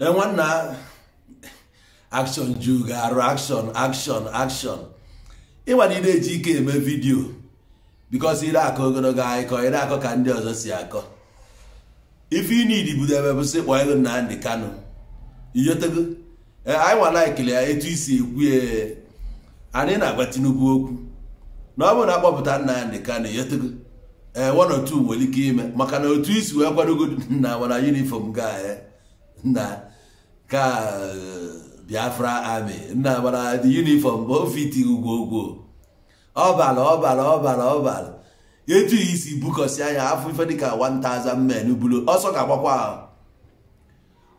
nwanna akshọn ju ga-arụ akshọn akshọn akshọn ịwa na ị na-eji ike eme vidiyo bikos ire akọ ogologo akụkọ ire akọ ka ndị ọzọ si akọ ife ị na-edibudo ebe bụ sị kpọọ ego Nnamdi kano iyotego anyị eh, nwana ekele ya etu isi ekwu eh, anyị na-agwa Tinubu okwu na ọ bụ na akpọpụta Nnamdi Kanu iyotego ee eh, one or nwere ike ime maka na otu isi wee kwadogo nna nwana yunifọm ga na ka biafra ami nna mara dị yunifọm bụ ofiti ugwo ugwo ọbara ọbara ọbara ọbara etu isi bukọsi anya afọ ife dịka 1000 men buru ọsọ ga-agbakwa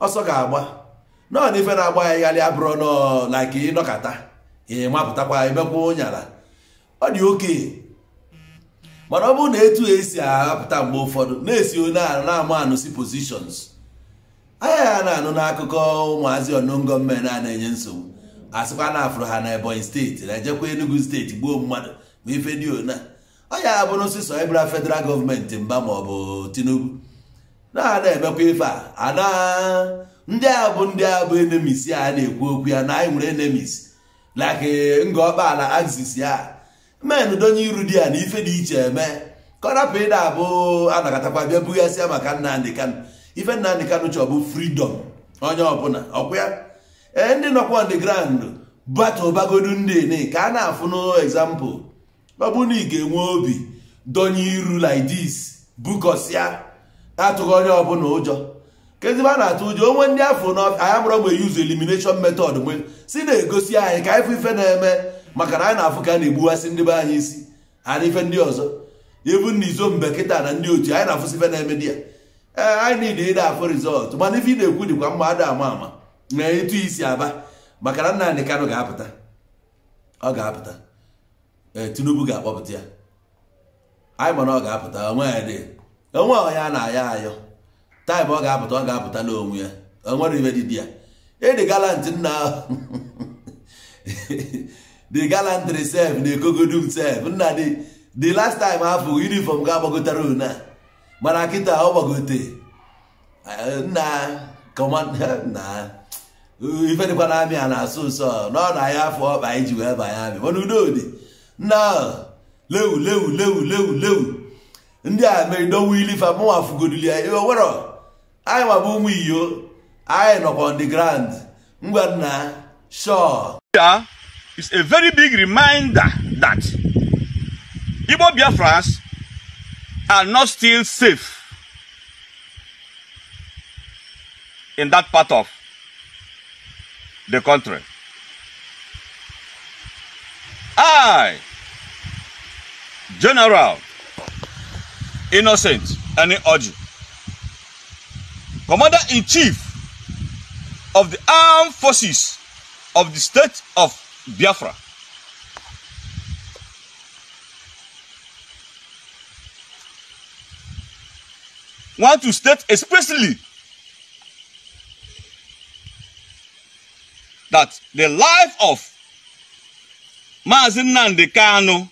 ọsọ ga-agba naọ na ife na-agba ya igharị abụrụ nọ na ịnọkata ịmapụtakwa emekwa ụnyala ọ dị oke mana ọ bụrụ na etu esi ahapụta mgbe ụfọdụ na-esi onye na-ama anụsi positions ya na-anụ n'akụkọ ụmụazị ọnụngo mme na-enye nsogbu sịkwa na afụrụ ha na ebonyi steeti na ejekwa enugu steeti gbuo mmadụ ma ife dị ona ọ ya bụrụ sisọ ịbụra federal gọọmenti mba ma ọ bụ tinubu na na-emekwa ife a ana ndị a bụ ndị a bụ enemis a na-ekwu okwu ya na anyị nwere enemis laki ngọkpa ala axis ya men donye iru di ya na ife dị iche eme ka ọ rapụ ịda abụ anakatakwa bịa bughasịa maka ndị kanụ. ife Nnamdi Kanu chọọ bụ fridọm onye ọbụla ọkwa ya ee ndị nọkwa nde grand ground batụbagodu ndị ka a na-afụ n'example ọbụ na ị ga-enwe obi donye iru lidis this bukọsịa atụghị onye ọbụla ụjọ kezibe a na-atụ ụjọ onwe ndị afọ n'anya mụrụ mgbe yuzu elimination metod mgbe si na-egosi anyị ka anyị ife na-eme maka na anyị na-afụ ka a na-egbuwasị ndị be anyị isi ha na ife ndị ọzọ ebu na izo mbe kịta na ndị otu anyị na-afụsi ife na-eme di ya anyị niile ide afọ rizọtụ mana ife ị na-ekwu dịkwa mma ada ama ama na etu isi aba maka na nna anyị Kanu ga-apụta ọ ga-apụta Tinubu ga-akpọpụta ya anyị mana ọ ga-apụta onwe ya dị onwe ọya na aya ayọ taịm ọ ga-apụta ọ ga-apụta n'onwe ya onwe na ibe dị ya ịdị galant nna ahụ the galant sef na ekogodum sef nna dị the last time afọ uniform ga-agbagotara une mana kịta ọ gbagote ife dịkwa na amị a na-asụ nsọ na ọ na ahịa afọ ọkpa anyị ji wee banye amị mana udo dị nna lewu lewu lewu lewu lewu ndị a mere dowe ilifa mụnwa fụgodili ya iwe werọ anyị ma bụ ụmụ iyo anyị nọkwa ndị the ground ngwa nna sure is a very big reminder that Igbo Biafras are not still safe in that part of the country. I, General Innocent Enioji, Commander in Chief of the Armed Forces of the State of Biafra. want to state expressly that the life of Mazi Nnamdi Kanu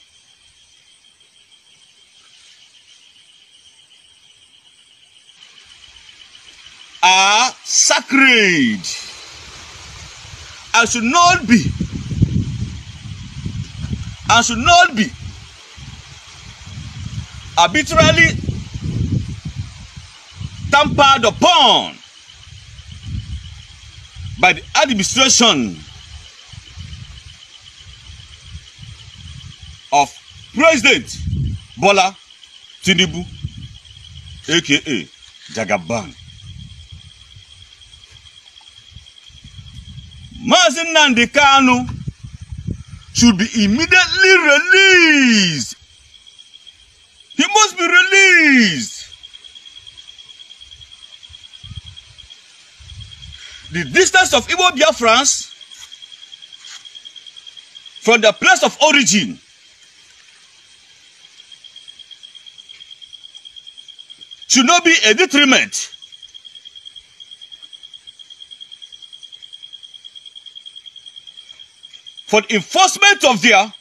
are sacred and should not be and should not be arbitrarily tampered upon by the administration of President Bola Tinubu aka Jagaban. Mazi Nnamdi Kanu should be immediately released. He must be released. The distance of Igbo Biafrans from the place of origin should not be a detriment for the enforcement of their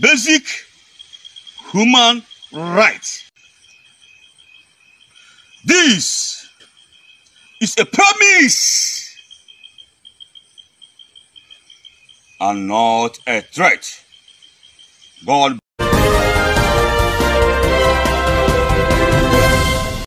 basic human rights. This It's a promise and not a threat. God